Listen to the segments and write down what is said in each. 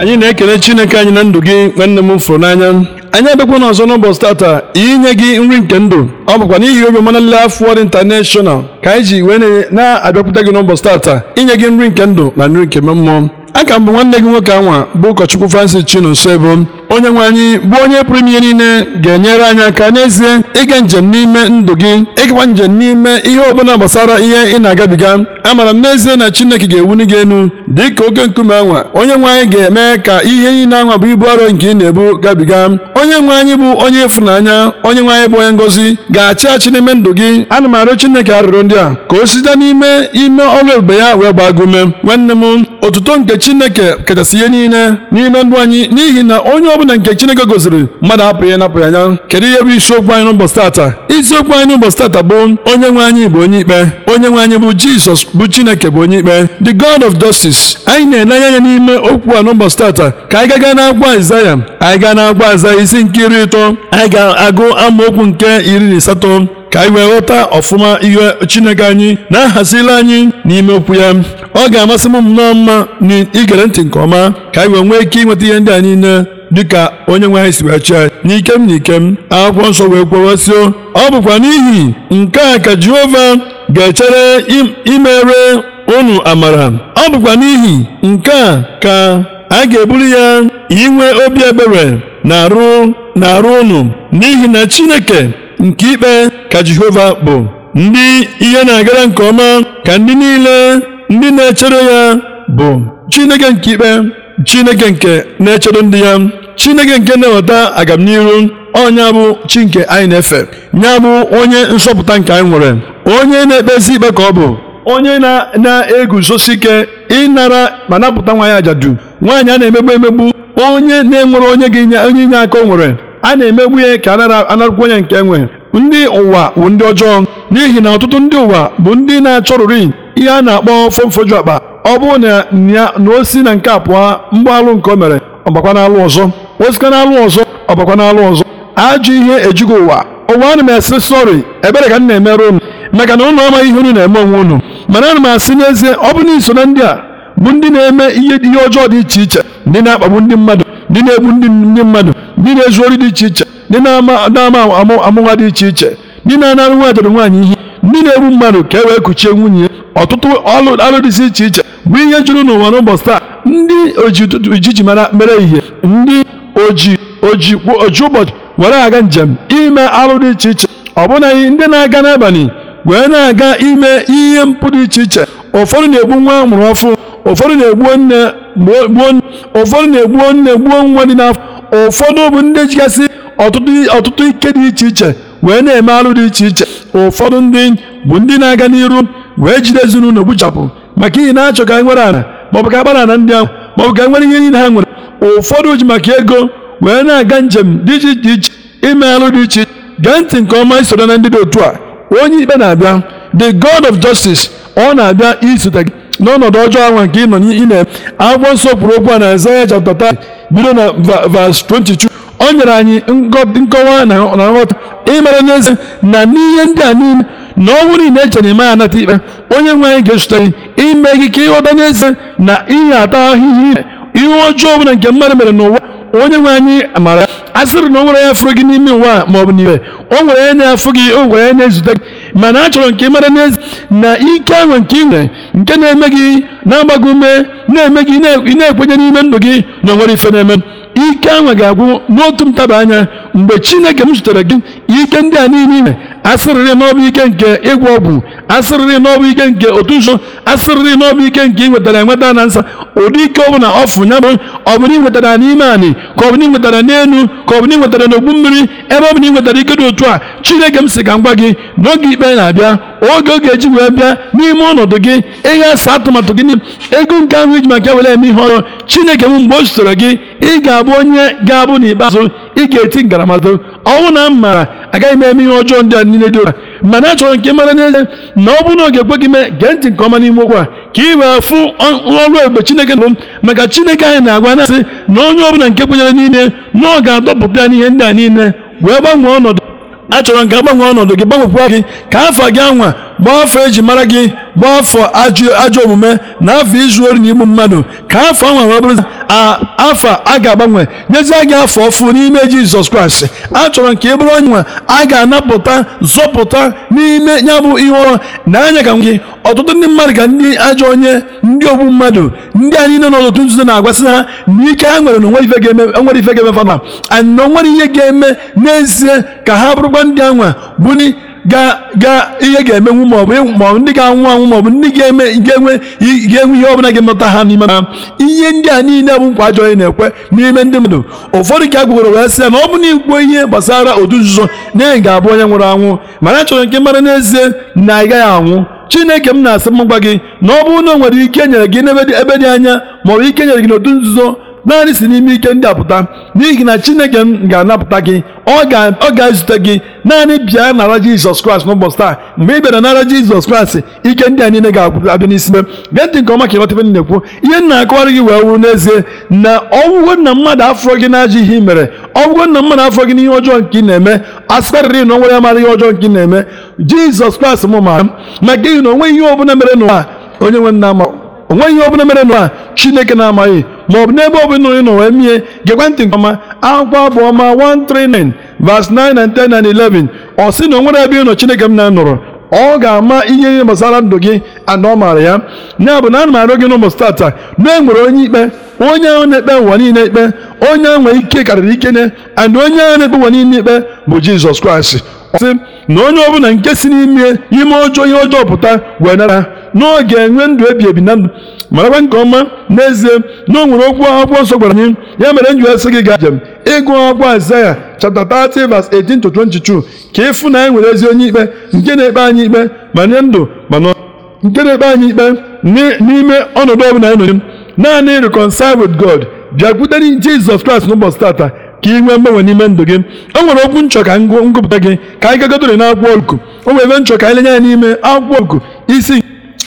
anyị na-ekele chineke anyị na ndụ gị nwanne m fụrụ n'anya anyị abịakwa n'ọzọ n'ụbọchị tata inye gị nri nke ndụ ọ bụkwa n'ihi obi ọma na Life intanashonal ka anyị ji wee na abịakwute gị n'ụbọchị tata inye gị nri nke ndụ na nri nke mmụọ aka mbụ nwanne gị nwoke anwa bụ ụkọchukwu Francis Chinonsoebo onye nwe anyị bụ onye pụrụ ime ihe niile ga-enyere anyị aka n'ezie ịga njem n'ime ndụ gị ịgakwa njem n'ime ihe ọbụla gbasara ihe ị na-agabiga amara m n'ezie na chineke ga-ewuli gị enu dị ka oke nkume anwa onye nwe anyị ga-eme ka ihe niile anwa bụ ibu arọ nke ị na-ebu gabiga onye nwe anyị bụ onye ịfụnanya onye nwe anyị bụ onye ngozi ga-achị achị n'ime ndụ gị ana m arịọ chineke arịrịọ ndị a ka o site n'ime ime ọrụ ebube ya wee gbaa gị nwanne m otuto nke chineke kachasị ihe niile n'ime ndụ anyị n'ihi na onye bụ na nke chineke gosiri mmadụ apụghị ihe anya kedu ihe bụ isiokwu anyị n'ụbọchị tata isiokwu anyị n'ụbọchị tata bụ onye nwe anyị bụ onye ikpe onye nwe anyị bụ jizọs bụ chineke bụ onye ikpe the god of justice anyị na-elenye anya n'ime okwu a n'ụbọchị tata ka anyị gaga n'akwụkwọ aịzaya anyị gaa n'akwụkwọ aịzaya isi nke iri ịtọ anyị ga-agụ amaokwu nke iri na asatọ ka anyị wee ghọta ọfụma ihe Chineke anyị na-ahazila anyị n'ime okwu ya ọ ga-amasị m nnọọ mma na igere ntị nke ọma ka anyị wee nwee ike ịnweta ihe ndị a niile dịka onye nwe anyị si wee chịa n'ike m na ikem m akwụkwọ nsọ wee kwewesịo ọ bụkwa n'ihi nke a ka Jehova ga-echere imere unu amara ọ bụkwa n'ihi nke a ka a ga-ebuli ya inwe obi ebere na arụ na arụ unu n'ihi na Chineke nke ikpe ka Jehova bụ ndị ihe na-agara nke ọma ka ndị niile ndị na-echere ya bụ Chineke nke ikpe Chineke nke na-echere ndị ya Chineke nke na-eweta agamnihu ọnya bụ chi nke anyị na-efe ya bụ onye nsọpụta nke anyị nwere onye na-ekpezi ikpe ka ọ bụ onye na-eguzosi ike ịnara ma napụta nwanyị ajadu nwaanyị a na-emegbu emegbu onye na-enwere onye ga onye inye aka o nwere a na-emegbu ya ka anarakwu onye nke enwe ndị ụwa bụ ndị ọjọọ n'ihi na ọtụtụ ndị ụwa bụ ndị na-achọrụrị ihe a na-akpọ fomfoju akpa ọ bụrụ na na-osi na nke a pụọ mgbe alụ nke o mere ọbakwa n'alụ ọzọ osika n'alụ ọzọ ọbakwa n'alụ ọzọ ajọ ihe ejugo ụwa ụwa ana m asị sọrị ebere ka m na emerụ unu maka na unu ọma ihe unu na-eme onwe unu mana ana m asị n'ezie ọ bụ na iso na ndị a bụ ndị na-eme ihe ihe ọjọọ dị iche iche ndị na-akpagbu ndị mmadụ ndị na-egbu ndị mmadụ ndị na-ezu ori dị iche iche ndị na-ama amụwa dị iche iche ndị na-anara nwa adịrị nwaanyị ihe ndị na-egbu mmadụ ka e wee kuchie nwunye ọtụtụ alụ dị iche iche bụ ihe juru n'ụwa n'ụbọchị taa ndị ojiji mara mere ihe ndị oji oji ụbọchị were aga njem ime alụ dị iche iche ọbụnaghị ndị na-aga n'abalị wee na-aga ime ihe mpụ dị iche iche ụfọdụ na-egbu nwa amụrụ ọfụ ụfọdụ na-egbuo nne gbuo nwa dị n'afọ ụfọdụ bụ ndị jigasị ọtụtụ ike dị iche iche wee na-eme alụ dị iche iche ụfọdụ ndị bụ ndị na-aga n'iru wee jide ezinụlọ gbuchapụ maka ihi na-achọ ka e nwere ala maọbụ ka agbara ala ndị ahụ maọbụ ka e nwere ihe niile ha nwere ụfọdụ ji maka ego wee na-aga njem dị iche iche iche ime alụ dị iche iche gee ntị nke ọma isoro na ndị dị otu a onye ikpe na-abịa the god of justice ọ na-abịa isote gị n'ọnọdụ ọjọọ ahụ nke ị nọ n'ime akwụkwọ nsọ kwuru okwu a na Aịzaya chapter bido na verse 22 o nyere anyị nkọwa na nghọta ịmara n'ezie na n'ihe ndị a niile na ọnwụ niile echere na ịmaghị anata ikpe onye nwe anyị ga-echute gị ime gị ka ịghọta eze. na ihe ata ahụhụ ime ihe ọjọọ ọbụla nke mmadụ mere n'ụwa onye nwe anyị amara a sịrị na o nwere ya fụrụ gị n'ime ụwa ma ọ bụ n'ibe o nwere ya na-afụ gị o nwere ya na-ezute gị mana achọrọ nke mara na ike ahụ nke ị nke na-eme gị na-agbago ume na-eme gị na-ekwenye n'ime ndụ gị na nwere ife na-eme ike ahụ ga-agwụ n'otu ntaba anya mgbe Chineke m zutere gị ike ndị a niile asịrịrị n'ọbụ ike nke ịgwọ ọgwụ asịrịrị n'ọbụ ike nke otu nso asịrịrị n'ọbụ ike nke inwetara enweta na nsa ụdị ike ọbụla ọfụ ya bụ ọbụla inwetara n'ime anị ka ọbụla inwetara n'elu ka ọbụla inwetara n'ogbu mmiri ebe ọbụla inwetara ike dị otu a chineke m si ka m gị n'oge ikpe na-abịa oge oge eji wee bịa n'ime ọnọdụ gị ihe asa atụmatụ gị ego nke ahụ iji maka were eme ihe ọrụ chineke m mgbe o sitere gị ị ga-abụ onye ga-abụ n'ikpeazụ ị ga-eti ngaramahụhụ ọnwụ na m maara agaghị m eme ihe ọjọọ ndị a niile dị otu mana achọrọ nke mara n'ezie na ọ bụrụ na ọ ga-ekwe gị mee gee ntị nke ọma n'ime okwu a ka ị wee fụ ọrụ ebube chineke nụrụ m maka chineke anyị na-agwa na-asị na onye ọbụla nke kwenyere nile na ọ ga-adọpụta ya n'ihe ndị a niile wee gbanwee ọnọdụ achọrọ nke gbanwee ọnọdụ gị gbanwekwa gị ka afọ gị anwa gbaa afọ eji mara gị gbaa afọ ajọ omume na afọ izu ori na igbu mmadụ ka afọ anwa wee bụrụ afọ a ga-agbanwe nyezie gị afọ ọfụ n'ime jizọs kraịst a chọrọ nke ị bụrụ onye nwe a ga-anapụta zọpụta n'ime ya bụ ihe ọrụ na anya ka gị ọtụtụ ndị mmadụ ka ndị ajọ onye ndị ogbu mmadụ ndị anyị niile nọ n'otu nzuzo na-agwasị ha na ike ha nwere na onwere ife ga-eme fana anyị na onwere ihe ga-eme n'ezie ka ha bụrụkwa ndị anwa bụni ihe ga-emenwu maọbụ ndị ga-anwụ anwụ maọbụ ndị ga-enwe ihe ọbụla ga-emeta ha n'ime ha ihe ndị a niile bụ nkwa ajọ na-ekwe n'ime ndị mmadụ ụfọdụ ka a wee sị ya na ọ bụ na igbuo ihe gbasara otu nzuzo na ị ga-abụ onye nwụrụ anwụ mana achọrọ nke mara n'ezie na ị gaghị anwụ chineke m na-asị m gị na ọ bụrụ na o nwere ike e nyere gị n'ebe dị anya maọbụ ike e nyere gị n'otu nzuzo naanị si n'ime ike ndị apụta n'ihi na chineke ga-anapụta gị ọ ga-ezute gị naanị bịa nara jizọs kraịst n'ụbọchị taa mgbe ị bịara nara jizọs kraịst ike ndị a niile ga-abịa n'isime gee ntị nke ọma ka ịghọta ife na-ekwu ihe na akọwarị gị wee wuru n'ezie na ọgwụgwọ nna mmadụ afọ gị na-ajụ ihe mere ọgwụgwọ nna mmadụ afọ gị n'ihe ọjọọ nke ị na-eme asịkarịrị na onwere amara ihe ọjọọ nke ị na-eme jizọs kraịst m ma maka ihi na onwe ihe ọbụla mere n'ụwa onye nwe nna onwe ihe ọbụla mere n'ụwa chineke na-amaghị ma ọ bụ n'ebe ọbụla onye nọ wee mie gekwa ntị nke ọma akwụkwọ bụ ọma 139 verse 9 and 10 11 ọ sị na o nwere ebe ị nọ Chineke m na-anọrọ ọ ga-ama ihe ihe gbasara ndụ gị na ọ maara ya ya bụ na ana m arịọ gị n'ụbọchị tata na e nwere onye ikpe onye ahụ na-ekpe ụwa niile ikpe onye ahụ nwere ike karịrị ike ne and onye ahụ na-ekpe ụwa niile ikpe bụ Jizọs Kraịst ọ sị na onye ọbụla nke si n'ime ime ọjọọ ihe ọjọọ pụta wee nara n'oge enwe ndụ ebi ebi na ndụ marakwa nke ọma n'ezie na o nwere okwu akwụkwọ nsọ gwara anyị ya mere m ji asị gị gaa njem ịgụ akwụkwọ Aịzaya chapter 30 verse 18 to 22 ka ịfụ na anyị nwere ezi onye ikpe nke na-ekpe anyị ikpe ma nye ndụ mana nke na-ekpe anyị ikpe n'ime ọnọdụ ọbụla anyị nọ naanị reconcile with God bịakwutere Jizọs Kraịst n'ụbọchị tata ka ị nwee mgbanwe n'ime ndụ gị o nwere okwu nchọ ka ngụpụta gị ka anyị gagodore n'akwụkwọ Luk o nwere ebe nchọ ka anyị lenye ya n'ime akwụkwọ Luk isi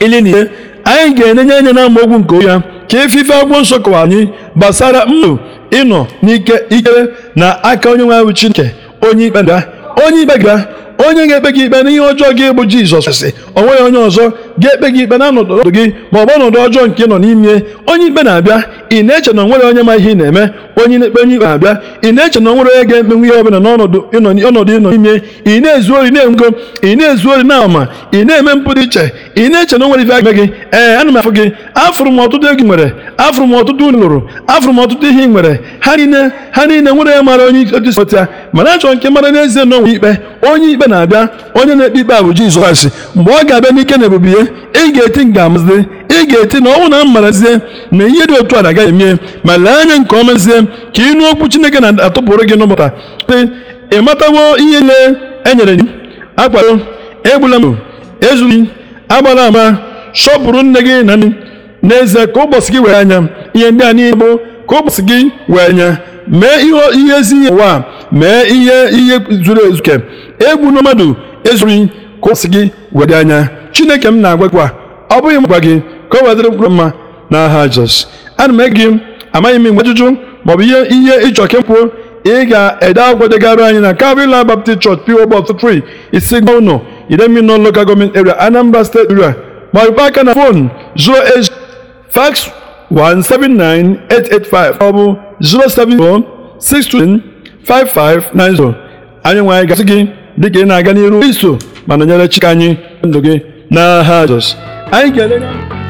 ili na ise anyị ga-enenye anya na amaokwu nke onye ya ka efife agwọ nsọ kọwara anyị gbasara mmadụ ịnọ n'ike ikere na aka onye nwe anyị nke onye ikpe ga onye ikpe ga onye ga-ekpe gị ikpe na ihe ọjọọ gị bụ Jizọs sị o nweghị onye ọzọ ga-ekpe gị ikpe na ọnọdụ gị ma ọ bụ ọnọdụ ọjọọ nke nọ n'ime onye ikpe na-abịa ị na-eche na onwere onye ma ihe ị na-eme onye na-ekpe onye ikpe na-abịa ị na-eche na onwere onye ga-ekpenwu ihe ọbụla n'ọnọdụ ịnọ n'ime ị na-ezu ori na enwe ị na-ezu ori na ama ị na-eme mpụ iche ị na-eche na onwere ife eme gị ee ana m afụ gị afụrụ m ọtụtụ egwu nwere afụrụ m ọtụtụ lụrụ afụrụ m ọtụtụ ihe ị nwere ha niile ha niile nwere ya mara onye ikpe dịsi otu ya mana achọrọ nke mara n'ezie na onwe ikpe onye ikpe na-abịa onye na-ekpe ikpe a bụ Jizọs mgbe ọ ga-abịa n'ike na ebube ya ị ga-eti nga ị ga-eti na ọnwụ na mmarazie na ihe dị otu a agaghị emie ma lee anya nke ọma ezie ka ịnụ okwu chineke na-atụpụrụ gị n'ụbọchị te ị matawo ihe niile e nyere gị akwado egbula mbọ ezughị agbala ama sọpụrụ nne gị na nne n'ezie ka ụbọchị gị were anya ihe ndị a niile bụ ka ụbọchị gị were anya mee ihe ezi ihe ụwa mee ihe ihe zuru ezu egwu na mmadụ ezughị ka ụbọchị gị were anya chineke m na-agwa ọ bụghị m gị ka ọ wadịrị mkpụrụ mma n'aha Jizọs ana m ege gị amaghị m mgbe ajụjụ maọbụ ihe ihe ịchọ kemkpuo ị ga-ede agwọ degara anyị na Calvary Baptist Church PO Box 3 Isigba Uno Idemino Local Government Area Anambra State Area maọbụ aka na fon 08 fax 179885 maọbụ 559. anyị nwanyị gasị gị dịka ị na-aga n'iru iso ma nọnyere Chika anyị ndụ gị n'aha Jizọs anyị ga-ele